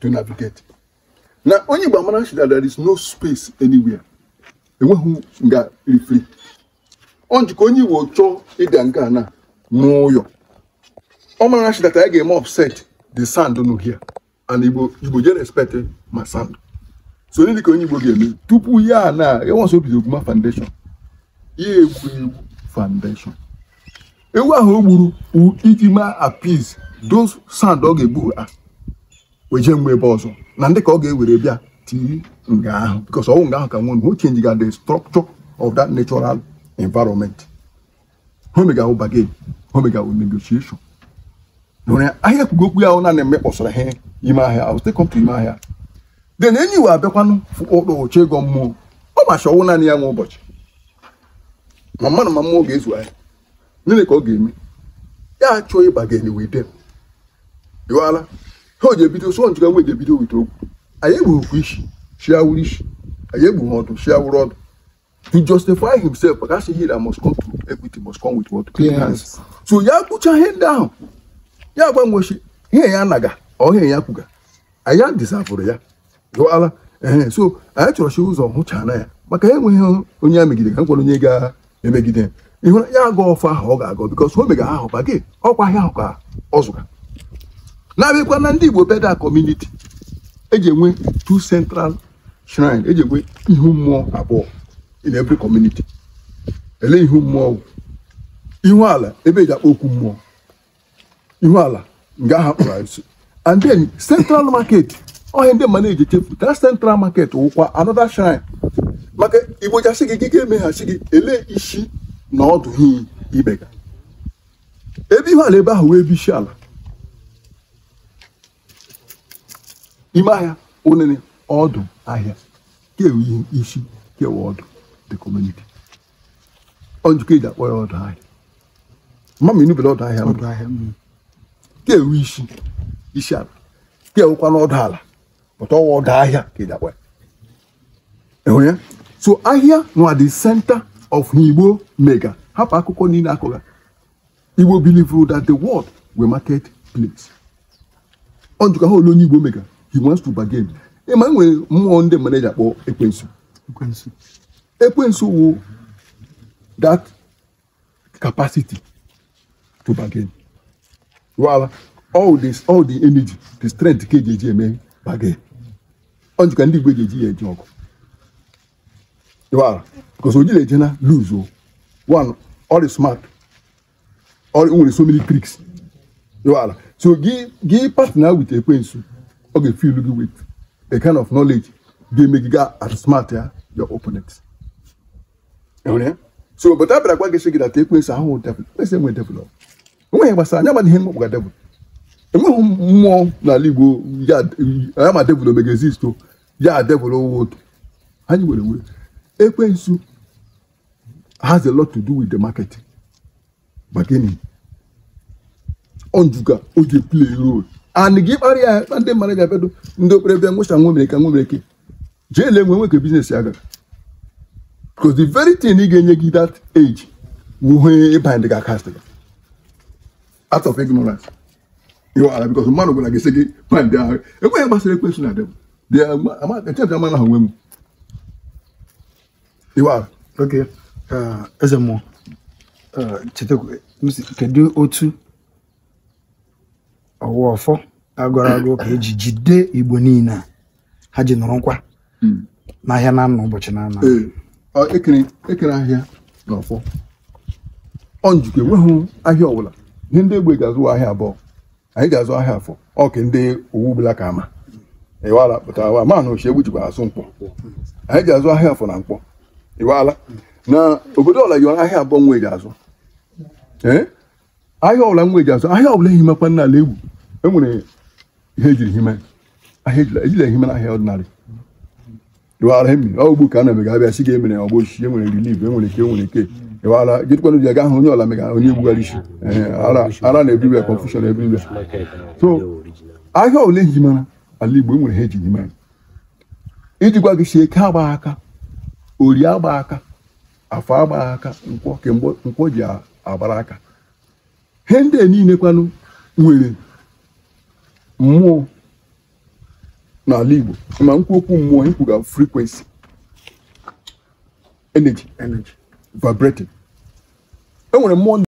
to navigate na onye Igbo amara shida there is no space anywhere enweghị nga ifri ọ njikọ onye Igbo chọọ ịbịa nke a na n'ụyọ ọ mara nchi that anyị ga-eme offset the sand nụ here and Igbo Igbo je respect ma sand so onye dịka onye Igbo ga-eme tupu ya na ya nwasị obido oguma foundation ya egwu egwu foundation ewu ahụ o gburu iji ma appease those sand ọ ga-egbu ha weje mgbe ebe ọzọ na ndị ka ọ ga-ewere bịa tii nga ahụ because ọnwụ nga ahụ ka nwere who change ga the structure of that natural environment homega wụ bagage homega wụ negotiation nwere ahịa kwugo okwu ahụ eme mmekpọsara ihe ime ahịa awụsite kọmtụ ime ahịa then enyi wee abịakwanụ ụkpọoche ego mmụọ ọ macha ọnwụ naanị ya nwa ụbọchị ma mmadụ ma mmụọ ga-ezu ahịa gịnị ka ọ ga-eme ya achọ ịbagin ga-enye wee dem ha o ji ebido sọ njikwa nwa ji ebido wite okwu anyị egbughịkwa isi chiawuru isi anyị egbughi ọdụ chiawuru ọdụ to justify himself that's ihe that must come to equity must come with what clean so ya kpụcha ihe ndị ahụ ya gbanwechi ihe ya naga ọhịa ya kwuga anyị adịzavụrụ ya dụala ee so anyị chọrọ chọrọchi ụzọ hụchana ya maka enweghị onye ya megide ka m onye ga-emegide ịhụra ya aga ọfọ ahụ ọ ga-agọ bikos o mega ahụ ba gị ọkwa ahịa ahụ ka ọ zụga na-abịakwa na ndị Igbo beda kọmuniti eji enwe two central shrine eji enwe ihu mmụọ abụọ in every community ele ihu mmụọ ihu ala ebe eji akpọ okwu mmụọ ihu ala nga aha kpụrụ and then central market ọhịa ndị mmadụ eji chefu ta central market wụkwa another shrine maka igbo jasị gị gị ga-emeghachi gị ele isi na ọdụ hi ibega ebe ihu ala ebe ahụ wee bụ isi ala ime ahịa onene ọdụ ahịa kewe ihe isi kewe ọdụ the community onjikọ eji akpọ ya ọdụ ahịa mama inubere ọdụ ahịa ọdụ ahịa kewe isi isi ala kewekwa n'ọdụ ala pụta ọwa ọdụ ahịa ka eji akpọ ya ịhụ ya so ahịa nwa the center of Igbo mega hapụ akụkọ niile akọga Igbo believe that the world will market place onjikọ ha olu onye Igbo mega he wants to bargain ịma nwere mmụọ ndị mmadụ eji akpọ ekwensu ekwensu wo that capacity to bargain Well, all this all the energy the strength ka eji eji eme bargain ọ njikwa ndị igbo eji eji ya eji ọgụ wala because oji na-eje na lose o one all is smart all nwere so many tricks wala so gị gị partner with ekwensu ọ ga-efilu gị wit a kind of knowledge ga-eme gị gaa at smart ya your opponent so but abịara gwa gị sị gị na ka ekwensu ahụ devil ekwensu enwe devil enweghị gbasara anya ma ihe mkpọkpụ ga devil enweghị mmụọ n'ala Igbo ya ma devil omega exist oh. ya devil oh, owotu anyị were were ekwensu eh, has a lot to do with the market. But then, on Juga, play a role. anị gị kpara ya na ndị mmadụ ga-abịado ndị okpere bịa nwụcha nwomereke nwomereke jee ele nwe nwoke biznes ya gara because the very thing ị ga-enye gị that age wuhe e bind gị aka sị out of ignorance ịwara because mmadụ gwara gị sị gị bind ahụ enweghị gbasara ekwensụ na dịm amara ha nwe m ịwara oke eze mmụọ chetakwa kedu otu ọwụ ọfọ agụrụ agụ ka eji jide igbo niile a ha ji nọrọ nkwa hmm. n'ahịa na anọ ụbọchị na anọ ekere ahịa na ọfọ ọ njikwa enweghị ahịa ọbụla ihe ndị egbe ga-azụ ahịa abụọ anyị ga-azụ ahịa afọ ọ ka ndị owu bụla ka ama ịwala pụta wa mana na ochie egbu jikwa azụ mkpọ anyị ga-azụ ahịa afọ na mkpọ ịwala na obodo ọla yiwara ahịa abụọ nwa eji azụ ee ahịa ọbụla nwa eji azụ ahịa ọbụla ehi makwa n'ala egwu enwere ihe ejiri hime ejila ehime na ahịa ọdịnala ịwara mmiri ọgbu ka a na-emega abịa si gị emere ọgbụ osisi enwere relief enwere ke enwere ke. ịwara gịtụkwanụ ji aga ahụ onye ọla mega onye egbugharị isi ara na ebiriwe confusion ebiriwe so ahịa ole eji mara ala igbo enwere ha ejiri hime iji gwa gị si eke agba aka ori agba aka afọ agba aka nkwọ kemgbe nkwọ ji agbara aka he ndị niile kwanụ nwere mmụọ n'ala igbo ma nkwu okwu mmụọ ikwu ga frequency energy energy vibrating enwere mmụọ